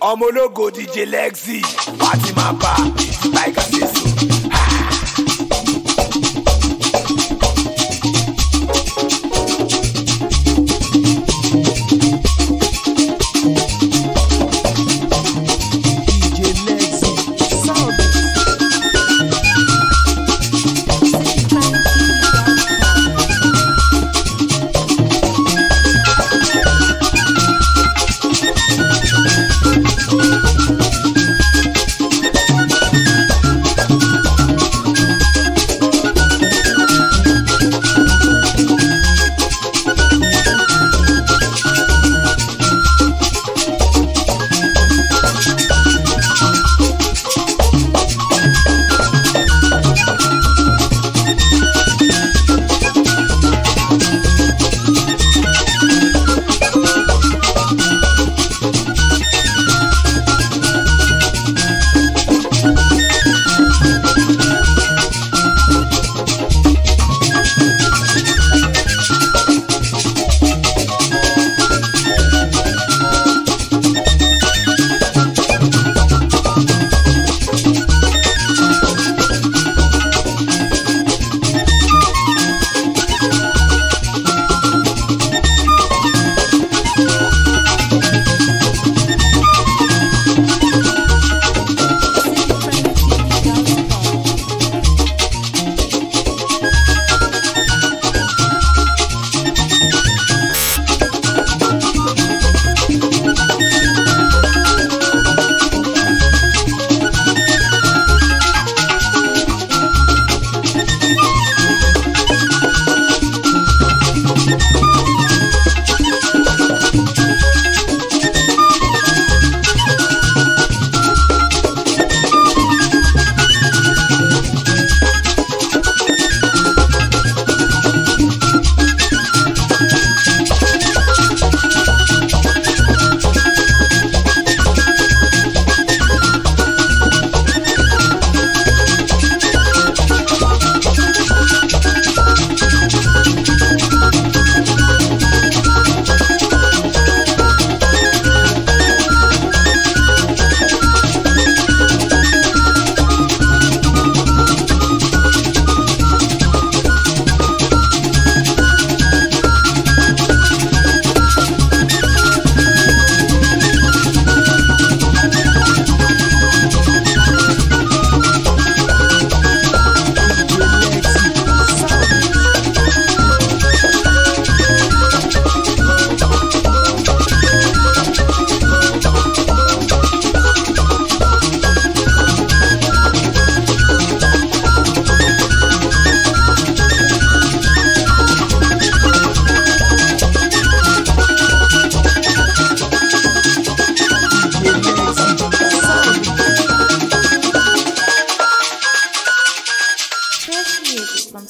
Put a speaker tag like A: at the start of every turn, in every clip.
A: omologo ọmọ ológo DJ Lexi pàtì máa bá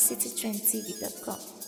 B: citytrendtv.com.